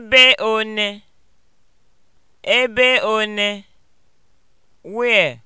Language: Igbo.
Ebe one? Ebe one?